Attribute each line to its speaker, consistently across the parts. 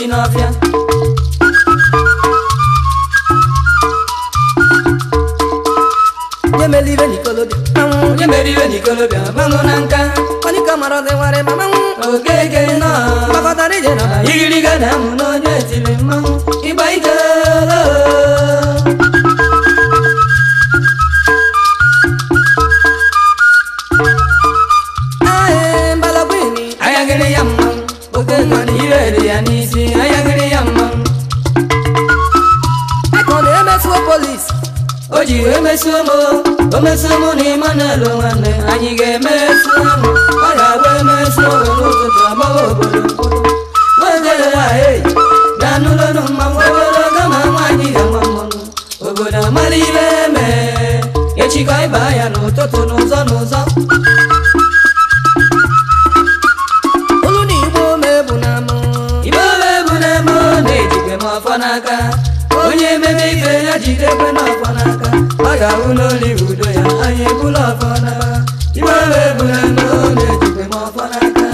Speaker 1: si n'ọfịa onye mere ibe na nka onye ka mara ọdịwarị ma manwụ oke nọ gbakọtara ije na igiriga na amụ na onye etiri mmanwụ ịgba ike o e, e ji emesu m omesu m na ịma n'elu nwanne anyị ga-emesu m ọ ga-abụ emesu m n'ụtụtụ agbawa obodo nwaogolo ha eyi na anụlọnụ mmanwụ ogologo ma nwaanyị ga-ama mmanwụ obodo amara ibe mee echikọ ịba ya n'ụtụtụ n'ụzọ n'ụzọ n'aka onye ememe ibe ya jidekwe n'ọkwa n'aka ka unu olive udo ya anyị bụrụ ọfọ n'aba ime wee bụrụ na ọ na-ejikwe m ọfọ n'aka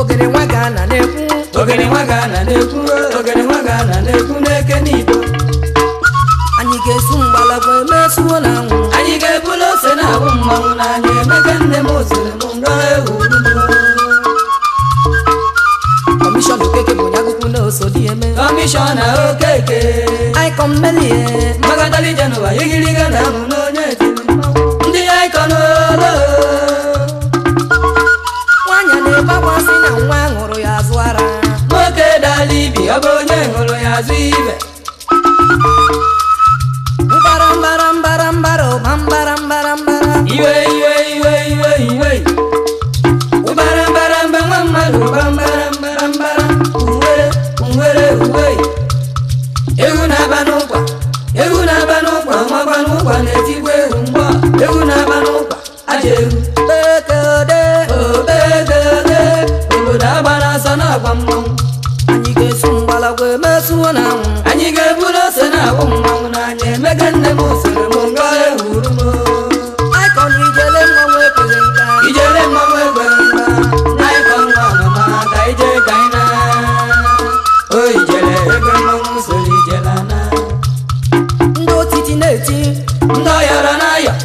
Speaker 1: ogere nwa ga-ana na-ekwu ogene nwa ga-ana na-ekwu ogere nwa ga-ana na-ekwu n'eke n'igbo anyị ga-esu mgbala bụ emesuo na anwụ así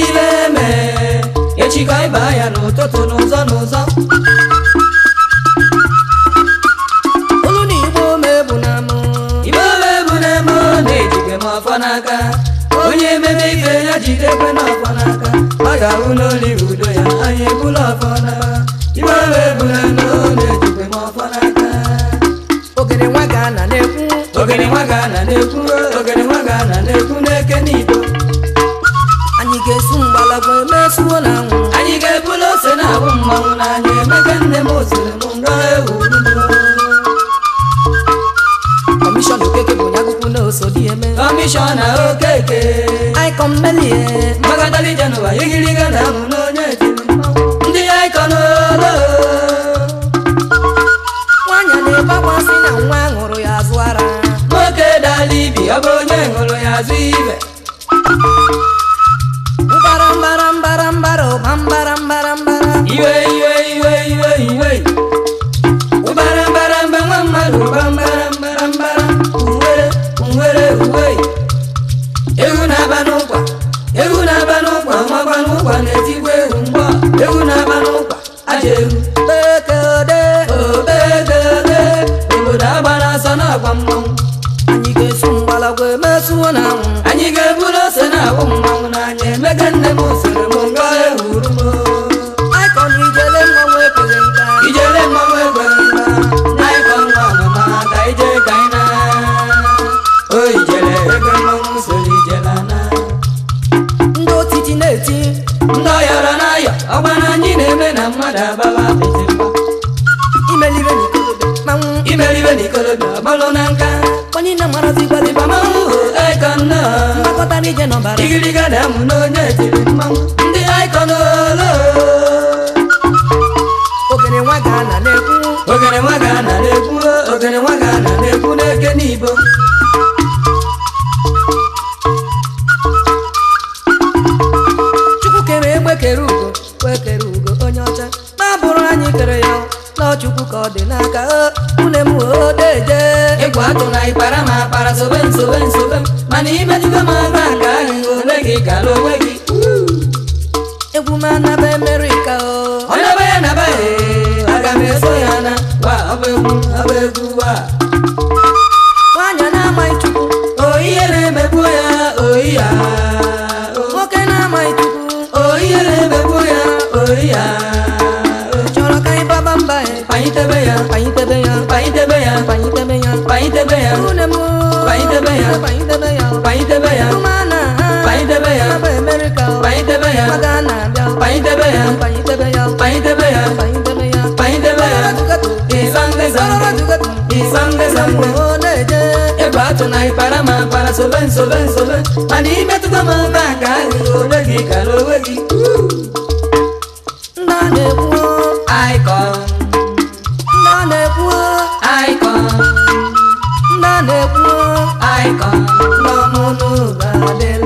Speaker 1: ibe eme echi ka ịba ya n'ụtụtụ n'ụzọ n'ụzọ olu igbo mebu na igbo mebu na m na m ọfọ n'aka onye ememe ibe ya jidekwe n'ọfọ n'aka ọ ga-ahụ n'oli udo ya anyị ebula ọfọ n'aka igbo mebu na m na-ejike m ọfọ n'aka ogene nwa ga-ana na-ekwu ogene nwa ga-ana na-ekwu ogene nwa ga-ana na-ekwu n'eke niile agwa emesuo na nwụ anyị ga-ebulu ose na awụ mmanwụ na anyị emeka nne m osiri m nrọ ewu kọmishọn okeke bụ onye akwụkwọ na oso dị eme kọmishọna okeke aikọm melie mbagadali jenụwa igige n'ọbara igiriga na amụ n'onye etiri mmanwụ ndị aikọnolo ogene nwa ga na-ekwu ogene nwa ga na-ekwu ogene nwa ga na-ekwu n'eke n'ibo imejugo m agba nke ahụ onwe gị gara onwe gị o onye ọba ya naba aga m ya na wa ọba egwu egwu wa nwaanyị na-amaghị chukwu o na ya oyi ya nwoke na-amaghị chukwu o ya oyi chọrọ ka anyị ya ya ya ya ya ಪೈದವಯ ಪೈದವಯ ಪೈದವಯ ಪೈದವಯ ಪೈದವಯ ಪೈದವಯ ಈ ಸಂಘ ಈ ಸಂಘ ಸಂಘ tunai parama para solen solen solen ani metu tama ta kali olagi kalowagi modelo.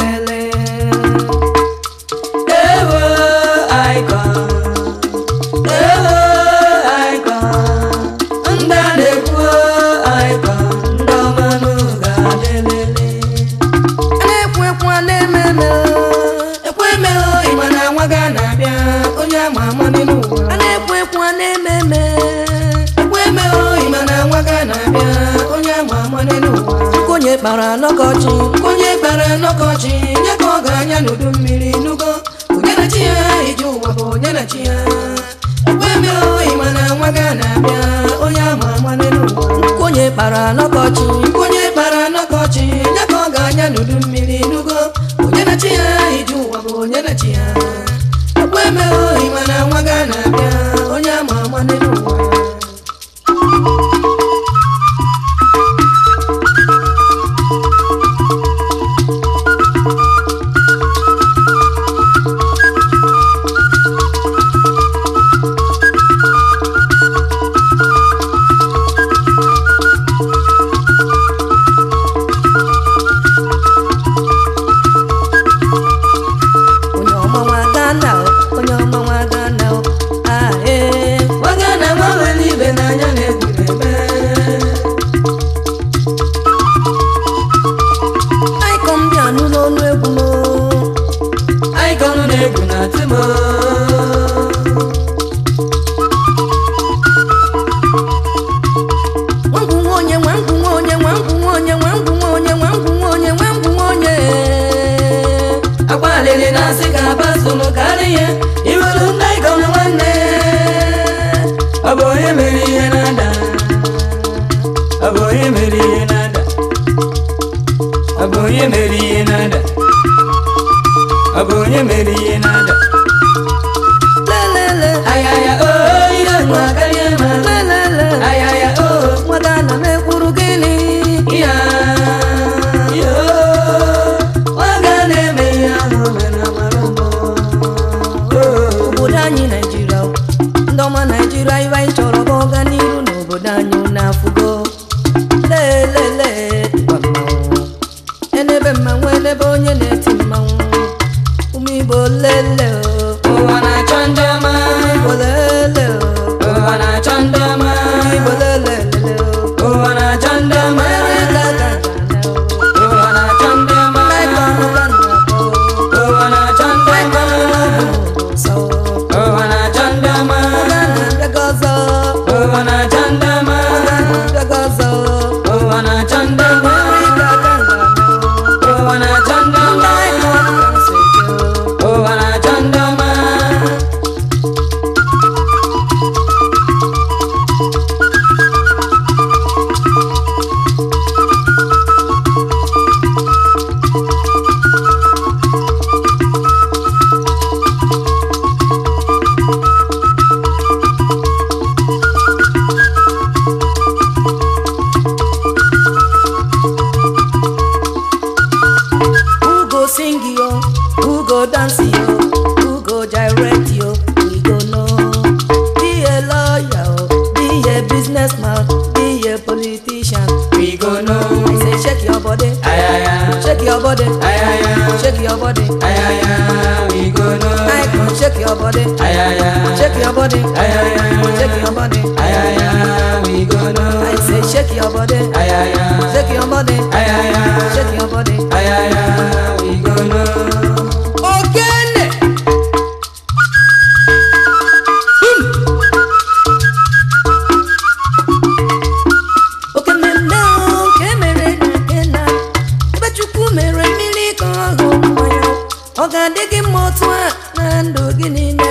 Speaker 1: kpara n'ọkọchị onye gbara n'ọkọchị nye ka ọ ga-anya n'udu mmiri n'ugo onye na chi ya iji ụwa bụ onye na chi ya ekwe mere oyi na nwa ga na-abịa onye ama ama n'elu ụwa onye kpara n'ọkọchị aboye meri yenada aboye meri yenada aboye meri yenada aboye meri yenada ayaya, we go know. I say shake your body, ayaya, shake your body, ayaya, shake your body, ayaya, we go hmm. know. ọ ga-adị gị mma otu a na ndụ gị niile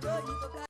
Speaker 1: 这一个。